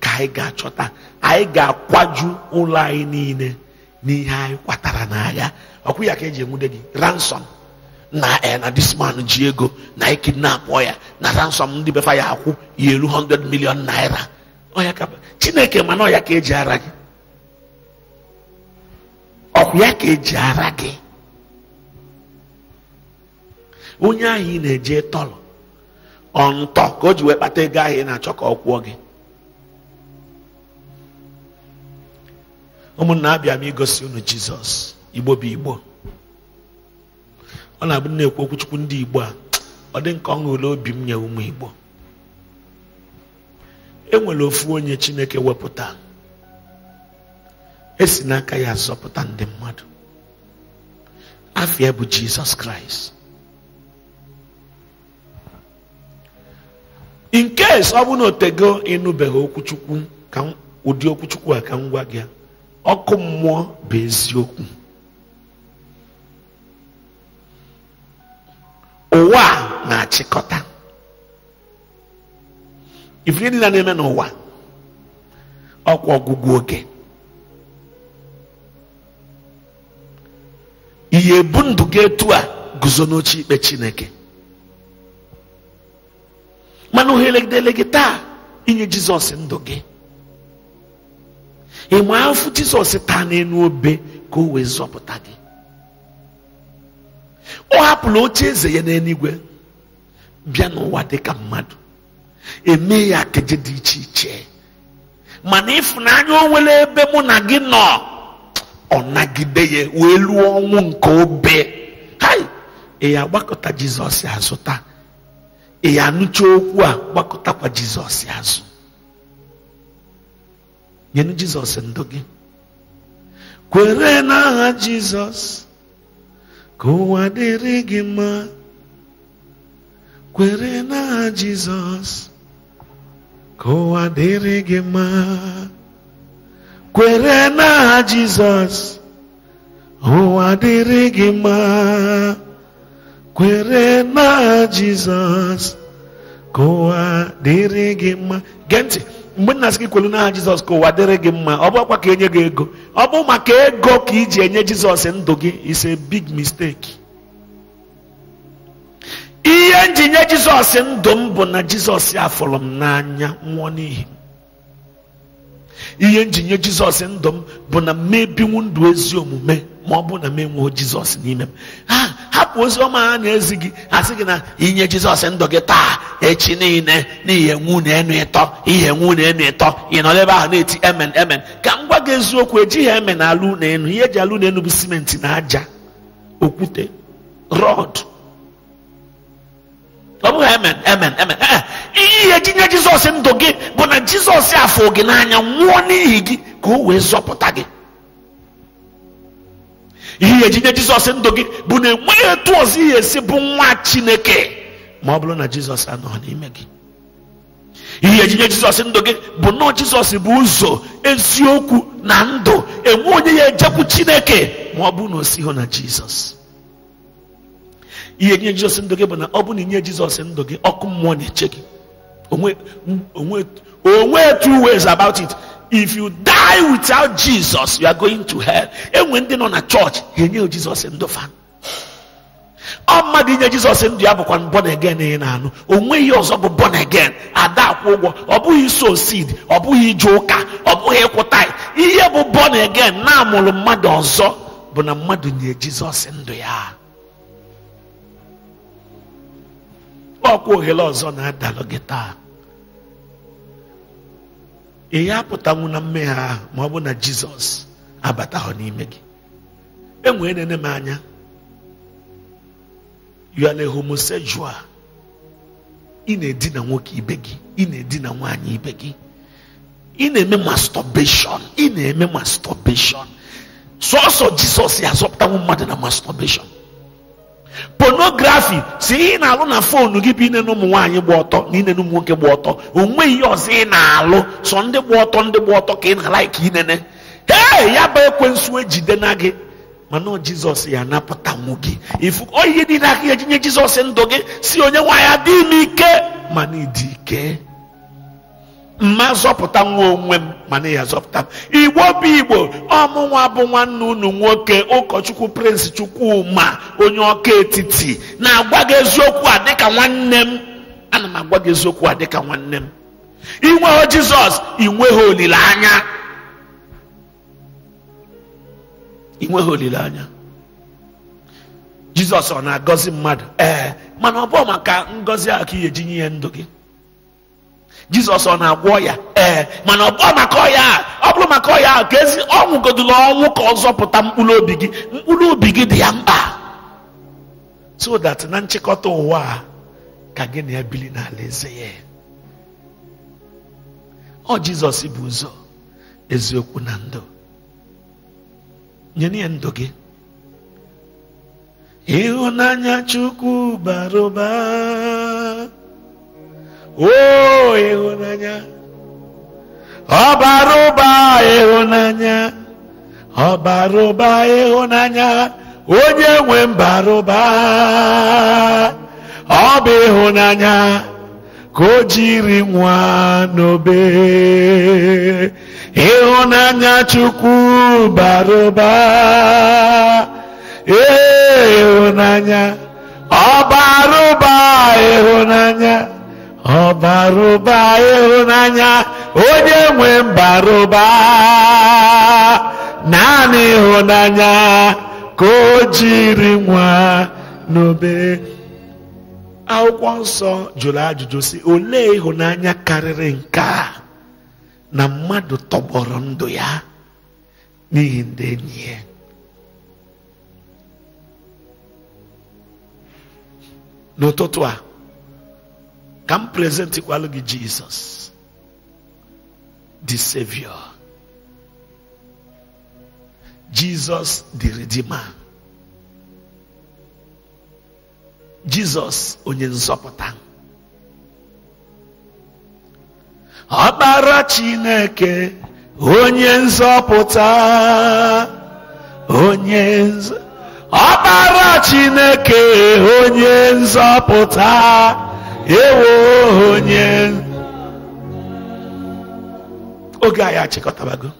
ka anyị ga-achọta anyị ga-akwaju ụlọ anyị niile n'ihe anyị kwatara n'agha ọkwụ ya ka eji enwude gị ransom na eh, na this man ji ego na anyị ya na ransom ndị befa ya akwụ ya elu 100 million naira ọya ka chineke mana ọya ka eji ara gị ọkwụ ya ka eji ara gị onye ahụ na-eje tọrọ ọ ntọ ka o ji wee kpata ego ahụ ị na-achọ ka ọ kwụọ gị ụmụnna abịa m igosi unu jizọs igbo bụ igbo ọ na-abụ na-ekwu okwuchukwu ndị igbo a ọ dị nke ọṅụ ule obi m nye ụmụ igbo enwere ofu onye chineke wepụta esi n'aka ya zọpụta ndị mmadụ afịa bụ jizọs kraịst in case ọ bụ na otego ịnụbeghị ụdị okwuchukwu a ka m gwa gị ọkụ mmụọ bụ eziokwu ụwa na-achịkọta ife niile na-eme n'ụwa ọkwa ọgwụgwụ oge ihe ebu ndụ gị etu a guzo n'oche ikpe chineke mana ohere gị taa inye jizọs ndụ gị ịma afụ jizọs taa n'elu obe ka o wee zọpụta gị ọ hapụla oche eze ya n'eluigwe bịa n'ụwa dị ka mmadụ eme ya keje dị iche iche mana ịfụnanya o nwere ebe mụ na gị nọ ọ nagide ya wee lụọ ọnwụ nke obe hai ị ya gbakọta jizọs azụ taa ị ya anụcha okwu a gbakọtakwa jizọs azụ nyenu jizọs ndụ gị kwere n'aha jizọs ka ụwa dịrị gị mma kwere n'aha jizọs ka ụwa dịrị gị mma kwere n'aha jizọs ụwa dịrị gị mma kwere n'aha jizọs ka ụwa dịrị gị mma gee ntị mgbe nna sị gị kwelu n'aha jizọs ka ụwa dịrị gị mma ọ bụ ọkwa ka enye gị ego ọ bụ maka ego ka iji enye jizọs ndụ gị is a big mistake ihe nji nye jizọs ndụ m bụ na jizọs afụrụ m n'anya nwụọ n'ihi ihe nye jizọs ndụ m bụ na m ndụ ezi omume ma ọ bụ na m enweo jizọs n'ime m ha hapụ ozi ọma ha na-ezi gị asị gị na inye jizọs ndụ gị taa echi niile n'ihe nwu na enu ịtọ ihe nwu na enu ịtọ ị nọ ebe ahụ na-eti emen emen ka m gwa gị eziokwu ejighị emen alụ na enu ihe eji alụ na enu bụ simenti na aja okwute rọd Amém, amen amen amen ihe ejinye jizọs ndụ gị bụ na jizọs afọ gị n'anya nwụọ n'ihi gị ka o wee zọpụta gị ihe ejinye jizọs ndụ gị bụ na enweghị etu ọzọ ihe esi é bụ nwa chineke ma ọ bụrụ na jizọs anọ n'ime gị ihe ejinye jizọs ndụ gị bụ nọọ jizọs bụ ụzọ eziokwu na ndụ enwe onye ya ejekwu chineke ma ọ na o sighị na jizọs ihe nye jizọs ndụ gị bụ na ọ bụ na inye jizọs ndụ gị ọkụ mmụọ na-eche gị onwe two ways about it if you die without jesus you are going to hell enwe ndị nọ na chọọchị ha enye jizọs ndụ fa ọ mmadụ inye jizọs ndụ ya bụkwa born again ị na-anụ o nweghị ọzọ bụ born again ada akwụ ụgwọ ọ bụghị so seed ọ bụghị ije ụka ọ bụghị ịkwụta ihe bụ born again na-amụrụ mmadụ ọzọ bụ na mmadụ nye jizọs ndụ ya ọkwa ohere ọzọ na-adalụ gị taa ị apụtanwu na mmehie ahụ ma ọ bụ na jizọs abatahụ n'ime gị enwere nene m anya you are a ị na-edina nwoke ibe gị ị na-edina nwaanyị ibe gị ị na-eme masturbation ị na-eme sọọsọ jizọs ya azọpụtanwu mmadụ na masturbation ponografi si ị na-alụ na fonu gị bụ ine na ụmụ nwaanyị gba ọtọ na ine na ụmụ nwoke gba ọtọ onweghị ihe ọzọ ị na-alụ sọ ndị gba ọtọ ndị gba ọtọ ka ị na-alaiki ala inene ee ya bụ ekwensu ejide na gị mana jizọs ya napụtanwu gị ifu oyi niile aka ya jinye jizọs ndụ gị si onye nwaanyị adịghị m ike mana ịdị ike mma zọpụta nwa onwe m mana ya zọpụta igbo bụ igbo ọmụnwa bụ nwanne unu nwoke ụkọchukwu chukwu ma onye ọka etiti na-agwa gị eziokwu a dịka nwanne m ana m agwa gị eziokwu a dịka nwanne m inweghị jizọs inweghị olileanya inweghị olileanya jizọs ọ na-agọzi mmadụ ee mana ọ bụ maka ngọzi a ka i eji nye ndụ gị jizọs ọ na-agwọ ya ee mana ọ bụrụ maka ọya ọ bụrụ maka ọya ka ezi ọnwụgodula ọnwụ ka ọ zọpụta mkpụrụ obi gị mkpụrụ obi gị dị ya mkpa so that na nchịkọta ụwa ka gị na ya bili n'ala eze ya ọ jizọs bụ ụzọ eziokwu na ndụ nye ya ndụ gị ịhụnanya chukwu oo ịhụnanya ọbara ụba ịhụnanya ọbara ụba ịhụnanya onye nwe mbara ụba ọ bụ ịhụnanya ka o jiri nwa n'obe ịhụnanya chukwu bara ụba ee ịhụnanya ọbara ụba ịhụnanya ọbarụba ịhụnanya onye nwe mbarụba naanị ịhụnanya ka o jiri nwa n'obe akwụkwọ nsọ jụrụ ajụjụ si olee ịhụnanya karịrị nke a na mmadụ tọgbọrọ ndụ ya n'ihi ndị enyi ya n'ụtụtụ a Come present igual Jesus, the Savior, Jesus, the Redeemer, Jesus, onye nzọpụta. Ọkpara Chineke, onye nzọpụta, onye Chineke, onye ewo onye oge anyị achịkọtabago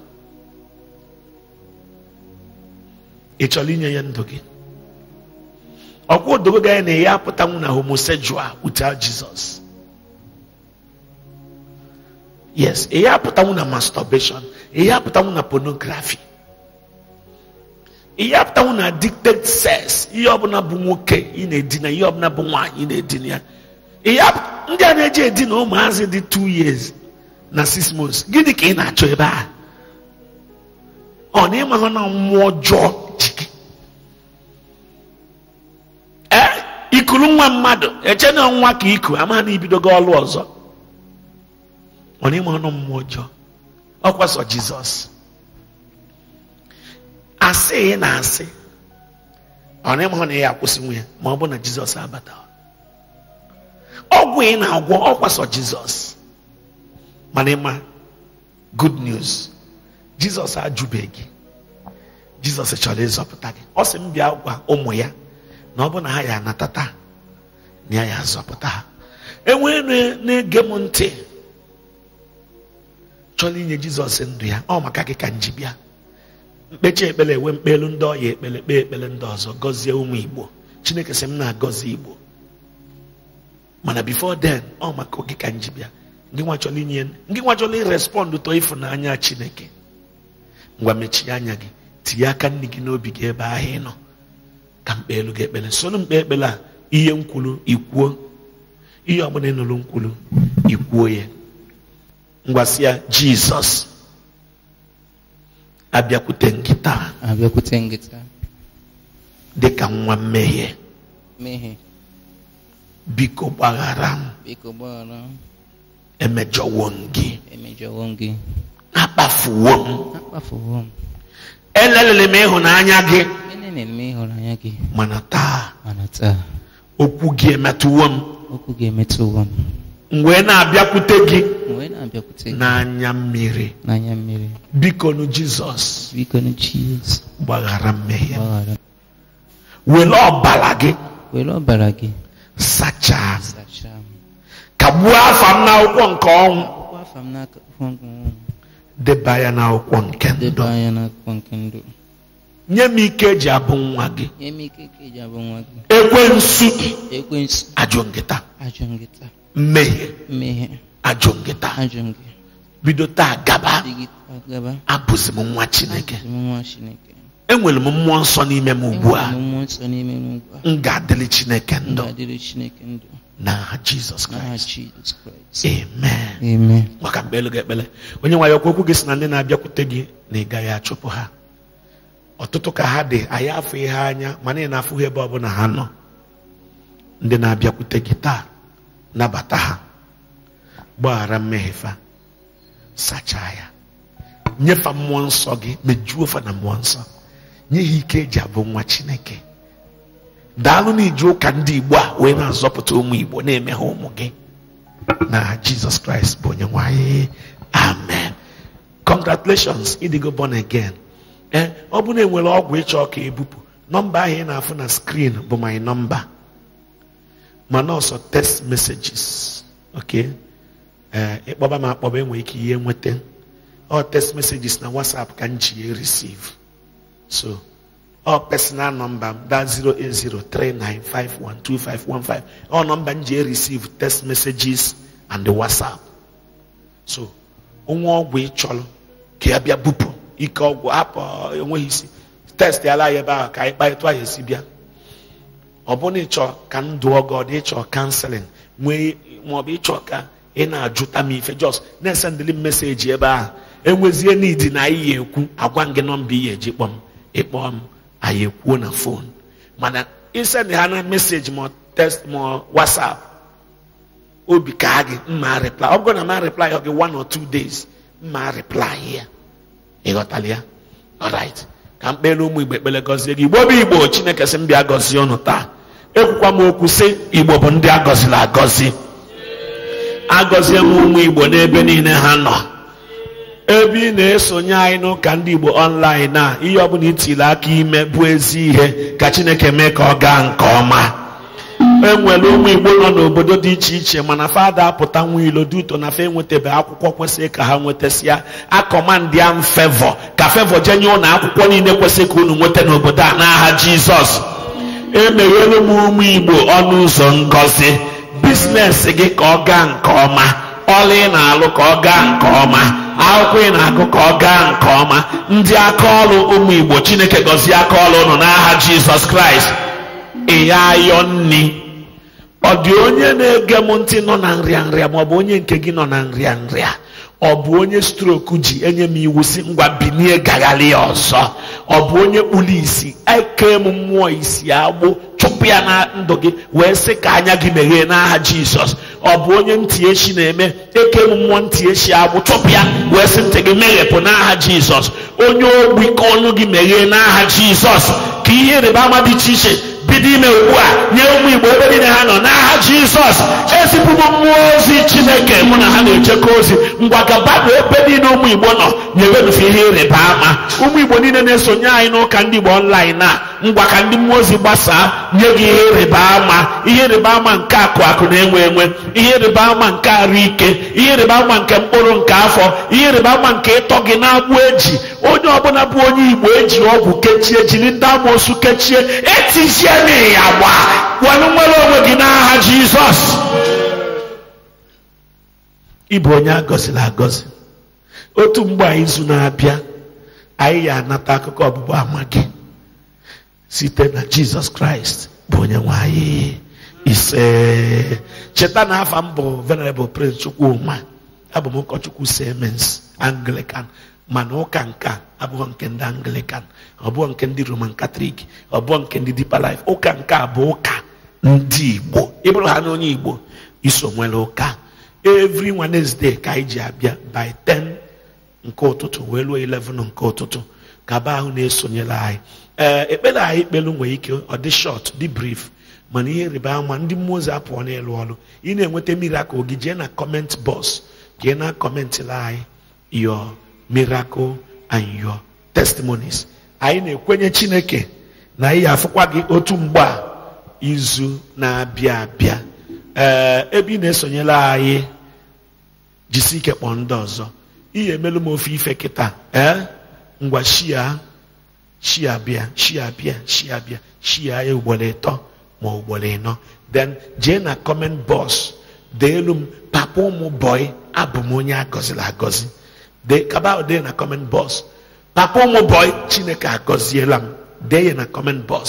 ị chọrọ inye ya ndụ gị ọkwa odogo gị na-enye apụtanwu na homosexual without Jesus yes ihe apụtanwụ na masturbation ihe na pornography ihe na addicted sex ihe ọbụla bụ nwoke ị na-edina ihe ọbụla bụ nwaanyị ị na-edina ya ndị a na-eji edi na ụmụazị dị 2 years na 6 months gịnị ka ị na-achọ ebe a ọ na ịmara na mmụọ ọjọọ ee ikuru nwa mmadụ eche na nwa ka iku ama na ibidogo ọlụ ọzọ ọ na ịmara na mmụọ ọjọọ ọ kwaso jizọs asị na asị ọ na ịmara na ya akwụsị nwunye ma ọ bụ na jizọs abata ọgwụ ị na-agwọ ọkwasọ jizọs mana ịma good news jizọs ajụbeghị jizọs chọrọ ịzọpụta gị ọ sị m bịa gwa ụmụ ya na ọ bụ na ha ya anata taa na ya ya azọpụta ha enwee na-ege m ntị chọrọ inye jizọs ndụ ya ọ maka gị ka m ji bịa mkpechi ekpere enwe mkpelu ndị ọya ekpere kpee ekpere ndị ọzọ gọzie ụmụ igbo chineke sị m na-agọzi igbo mana before then ọ maka oge ka nji bịa ndị nwa chọrọ inye ndị nwa chọrọ irespọndụ ịfụnanya chineke ngwa mechie anya gị tinye aka nne gị n'obi gị ebe ahụ ị nọ ka mkpe elu gị ekpere soro mkpe a ihe nkwulu ikwuo ihe ọbụla ịnụrụ nkwulu ikwuo ya ngwasịa ya jizọs abịakwute gị abịakwute gị dị ka nwa mmehie mmehie biko gbaghara m emejọwo m gị akpafuwo m elelere m ịhụnanya gị mana taa okwu gị emetụwo m m wee na-abịakwute gị n'anya mmiri biko nu jizọs gbaghara mmehie were ọbara gị sachaa ka kagbuo afa m n'akwụkwọ nke ọnwụ deba ya n'akwụkwọ nke ndụ nye m ike eji abụ nwa gị ekwensu ajụ nkịta mmehie ajụ nkịta bido taa gaba abụzi m nwa chineke enwere m mmụọ nsọ n'ime m ugbu a m ga-adịrị chineke ndụ na jizọs kraịst amen maka mkpelu gị ekpele onye nwe ya okwu okwu gị si na ndị na-abịakwute gị na ị gaghị achụpụ ha ọtụtụ ka ha dị anyị afọ ihe anya mana ị na-afụ ebe ọbụla ha nọ ndị na-abịakwute gị taa nabata ha gbaghara mmehie fa sachaa ya nyefa mmụọ nsọ gị mejuo fa na mmụọ nsọ nye ha ike eji abụ nwa chineke daalụ na iji ụka ndị igbo a wee na-azọpụta ụmụ igbo na-eme ha ụmụ gị na jizọs kraịst bụ onye nwanyị amen congratulations ịdịgo born again ee eh, ọ bụrụ na enwere ọgwụ ịchọ ka ebupụ nọmba ahụ ị na-afụ na skrin bụ my nọmba ma ọsọ text messages ok eh, ịkpọba m akpọba enwere ike ihe nweta ọ text messages na whatsapp ka m ji receive So, all personal number that's 08039512515. nọmba m ji receive text messages and the So, onwe ọgwụ ịchọrọ ka ya bịa bupụ ike ọgwụ hapụ enweghị isi test ala ya ebe ahụ ka anyị kparịta ya esi bịa ọ bụrụ ịchọ ka m dụọ gị ịchọ kanselin nwee maọbụ ịchọ ka ị na-ajụta m ife jos na-esendịli m meseji ebe ahụ enwezie n'idi na anyị ya ekwu agwa m gị nọmba ị ya eji kpọm ịkpọ m anyị ekwuo na fon mana isend ha na meseji ma test ma wasap obi ka gị mma reply ọ bụrụ na ma reply gị one or two days mma reply ya ịghọtala ya alright ka mkpere n'ụmụ igbo ekpere gọzie gị igbo bụ igbo chineke sị mbịa gọzie ọnụ taa ekwukwa m okwu sị igbo bụ ndị agọzila agọzi agọzie m ụmụ igbo n'ebe niile ha nọ ebe ị na-esonye anyị n'ụka ndị Igbo online a ihe ọbụla itili aka ime bụ ezi ihe ka Chineke mee ka ọ gaa nke ọma enwere ụmụ Igbo nọ n'obodo dị iche iche mana fada apụta nwa ilo dị ụtọ na fe enwetabeghị akwụkwọ kwesịrị ka ha nwetasịa akọmandị am fevọ ka fevọ jenye ụlọ akwụkwọ niile kwesịrị ka unu nweta n'obodo a n'aha Jizọs emeghele m ụmụ Igbo ọnụ ụzọ ngọzi biznes gị ka ọ gaa nke ọma ọla ị na-alụ ka ọ gaa nke ọma akwụkwọ ị na-agụ ka ọ gaa nke ọma ndị aka ọlụ ụmụ Igbo Chineke gọzie aka ọlụ nọ n'aha Jizọs Kraịst ịya ayọ nni ọ dị onye na-ege m ntị nọ na nrịanrịa ma ọ bụ onye nke gị nọ na nrịanrịa ọ bụ onye stroku ji enye m iwu si ngwa binie gagharị ya ọzọ ọ bụ onye kpuru isi eke m mmụọ isi agbụ chụpụ ya na ndụ gị wee sị ka anya gị meghee n'aha Jizọs ọ bụ onye ntị echi na-eme eke m mmụọ ntị echi agbụ ya wee sị ntị gị meghepụ n'aha jizọs onye ogbi ka ọnụ gị meghee n'aha jizọs ka ihe ịrịba ama dị iche iche bido ime ugbu a nye ụmụ igbo ebe niile ha nọ n'aha jizọs ezipụ m mmụọ ozi chineke mụ na ha na-echekọ ozi ngwa gabadụ ebe niile ụmụ igbo nọ na-ewedufe ihe ịrịba ama ụmụ igbo niile na-esonye anyị n'ụka ndị igbo ọnlaịn a ngwa ka ndị mmụọ ozi gbasaa nye gị ihe ịrịba ama ihe ịrịba ama nke akụ akụ na-enwe enwe ihe ịrịba ama nke arụ ike ihe ịrịba ama nke mkpụrụ nke afọ ihe ịrịba ama nke ịtọ gị na-agbụ eji onye ọbụla bụ onye igbo eji ọgwụ kechie jiri ndị amoosu kechie etizie n'iya gba were nwere onwe gị n'aha jizọs ịbụ onye agọziri agọzi otu mgbe izu na-abịa anyị ya anata akụkọ ọbụbụ ama gị site na jizọs kraịst bụ onye nwe ise cheta na afa m bụ venerable prince chukwuma abụ m ụkọchukwu semens anglican mana ụka nka abụọ nke ndị anglican ọbụọ nke ndị roman katọlik ọbụọ nke ndị deeper ụka nke bụ ụka ndị igbo ịbụrụ ha na onye igbo iso nwere ụka evri wednesday ka anyị ji abịa by 10 nke ụtụtụ wee ruo 11 nke ụtụtụ gaba ahụ na-esonyere anyị ee eh, ekpere anyị ikpelu nwere ike ọ dị short dị brief mana ihe rịba ama ndị mmụọ ozi apụọ n'elu ọrụ ị na-enweta miracle gị jee na comment bọs jee na kọmentịla anyị your miracle and your testimonies anyị na-ekwenye chineke na anyị afụkwa gị otu mgbe a izu na-abịa abịa ee eh, ebe ị na-esonyela anyị jisi ike kpọọ ndị ọzọ ị emelu m ofe ife kịta ee eh? ngwa shia chi abịa chi abịa chi abịa chi ya ugboro e ịtọ ma ugboro ịnọ then jee na comment box dee elu m papa ụmụ bọị abụ m onye agọziri agọzi dee kaba e dee na comment box papa ụmụ bọị chineke agọziela m dee ya na comment box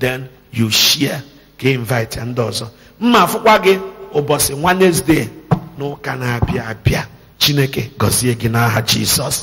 then you share ka invite ndị ọzọ mma afụkwa gị ụbọchị e Wednesday n'ụka na-abịa abịa chineke gọzie gị n'aha jisọs